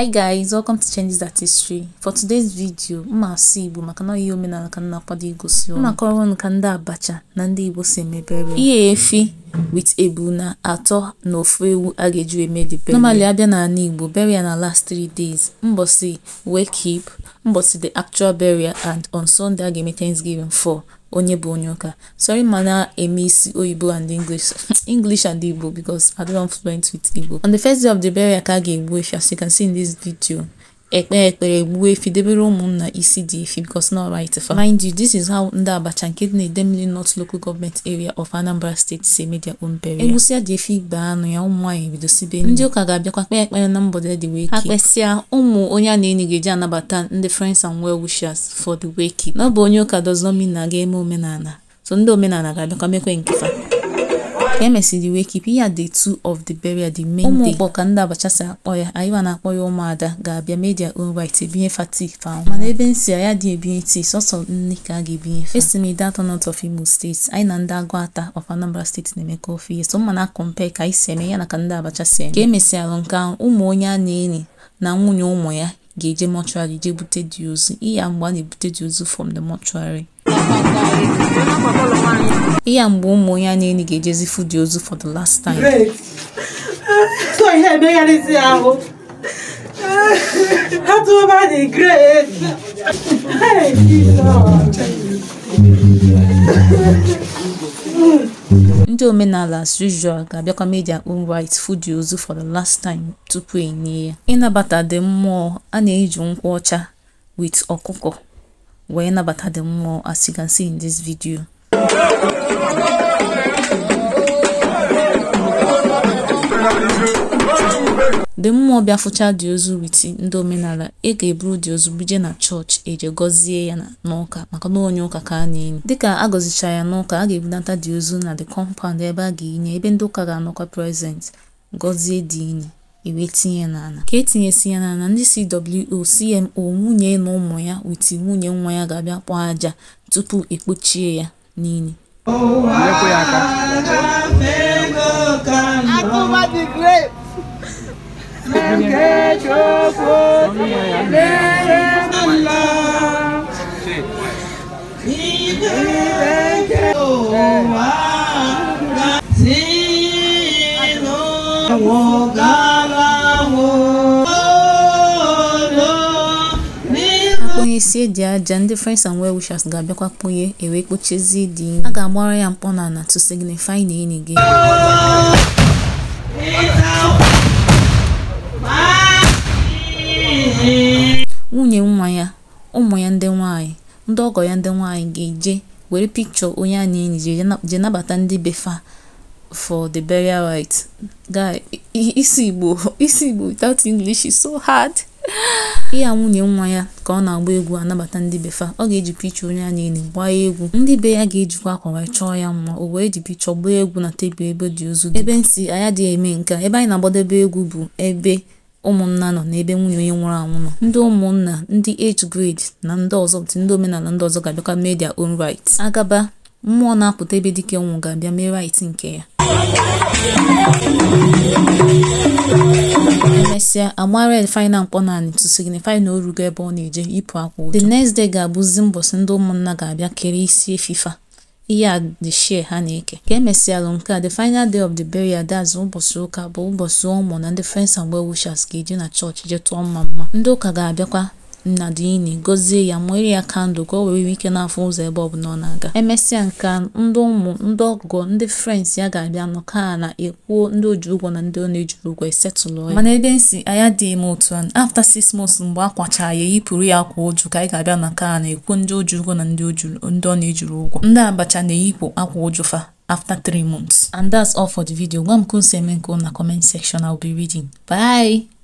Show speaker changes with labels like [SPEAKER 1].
[SPEAKER 1] hi guys welcome to changes that history for today's video mma asụ igbo maka na ihe omenala ka na-akwado igosi mma kọrọ ka ndị abacha na ndị igbo si emebere ihe efi wit ebu na atọ na ofu ewu a ga-eju eme the burial normally abịa n'ala igbo burial na last three days mbosi wake keep mbọsị the actual burial and on sunday a ga-eme thanksgiving for onye bụ onye ụka sorry mana eme isi oyibo and english english and igbo because i don't fluent with igbo on the first day of the burial ka a ga-egbu as you can see in this video ekpe ekpere gbuo efi debere ụmụnna isi dị efi because not right fa mind you this is how ndị abacha nke dị na-ede mmiri north local government area of anambra state si eme their own burial egwusịa dị efi igbe anụ ya ụmụ nwaanyị bido sibe ndị ụka ga-abịakwa kpee ekpere na mbọde dị wee ha kpesịa ụmụ onye a na-enyi ga-eji anabata ndị friends and well wishers for the wake na ọ bụ onye ụka does na ga-eme omenala so ndị omenala ga-abịakwa mekwe nke ka emesịrị wee kipụ ya day two of the burial the main day ụmụ ọkpọ ka ndị abacha si akpọ ya anyịwa na-akpọ ya ụmụada ga-abịa media own right ebinye fatik fam mana ebe m si ya dị ebinye ti sọsọ nne ka a ga-ebinye fa esi m ide atọ not of Imo steeti anyị na ndị agụ ata of Anambra steeti na-emekọ ofe ihe so mma na ka anyị si eme ya na ka ndị abacha si eme ka emesịalụ nke ahụ ụmụ onye a na-enyi na nwunye ụmụ ya ga-eje mọchụarị jee bute dị ozu iya mgbe a na-ebute dị ozu from the mọchụarị ihe a mgbe ụmụ onye a na-enyi ga-ejezi fụdị ozu for the last time so ihe emegharịzi ahụ ha tụọba dị great ndị omenala as usual ga-abịakwa media own right fụdị ozu for the last time tupu enye ya ịnabata dị mmụọ a na-eji nkwụ ọcha with ọkụkọ wee nabata the mmụọ as you can see in this video the mmụọ bịafụcha dị ozu witi ndị omenala ị ga-eburu dị ozu buje na chọọchị eje gọzie ya n'ụka maka na onye ụka ka a na-enyi dịka a gọzicha ya n'ụka a ga-ebunata di ozu na the compound ebe a ga-enye ebe ndị ụka ga-anọkwa present gọzie dị enyi iwee tinye n'ala ka etinyesi ya n'ala ndị cwo cmo nwunye na ụmụ ya witi nwunye nwa ya ga-abịa kpọọ aja tupu ekpochie ya n'ile Oh God. isi eji aja ndị friends and well wishers ga-abịakwa kponye ewee kpochezi dị a ga-agbara ya mkpọ na ana to signify na enyi gị nwunye nwa ya ụmụ ya ndị nwanyị ndị ọgọ ya ndị nwanyị ga-eje were pikchọ onye a na-enyi je nabata ndị befa for the burial rite guy isi igbo isi igbo without english is so hard. ya nwunye nwa ya ka ọ na-agba egwu anabata ndị be fa ọ ga-eji picha onye a niile gbaa egwu ndị be ya ga-ejikwa akwa wee chọọ ya mma o wee ji picha gbaa egwu na tebụl ebe dị ozu ebe nsị anya dị eme nke ebe anyị na-agbadebe egwu bụ ebe ụmụnna nọ n'ebe nwunye onye nwụrụ anwụ nọ ndị ụmụnna ndị age grade na ndị ọzọ ndị omenala ndị ọzọ ga-abịakwa media own right agaba mmụọ na-apụta ebe dike nwụ ga-abịa mee rait nke ya emesịa agbara red final mkpọ naanị to signify na o rugo ebe ọ na-eje ịpụ akwa ụjọ the next day ga-abụzi mbọsị ndị ụmụnna ga-abịa kere isi efifa ihe a the share ha na-eke ka emesịalụ nke a the final day of the burial that's ụbọchị ụka bụ ụbọchị ụmụ na ndị friends and wishers ga eji na chọọchị je tụọ mma mma ndị ụka ga-abịakwa ini gọzie ya mụnyere ya kandụl ka o were ike na-afụ ụzọ ebe ọ bụ ọ na-aga emesịa nke ndị ụmụ ndị ọgụgọ ndị frens ya ga-abịa nụ na-ekwuo ndị oji ụgwọ na ndị ọ na-ejiri ụgwọ esetụlụ ya mana ebe nsi anya dị eme otu a afta six months mgbe a kwachaa ya eyipụrụ ya akwa ụjụ ka anyị ga-abịa na ka a na-ekwu ndị oji ụgwọ na ndị ọ na-ejiri ụgwọ ndị abacha na-eyipụ akwa ụjụ fa after three months and that's all for the video gwa m ka unu eme nke na comment section I'll be reading bye